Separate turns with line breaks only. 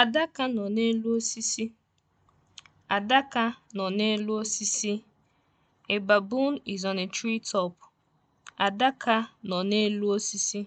Adaka nọ n'elu osisi. Adaka is on a Adaka nọ n'elu osisi.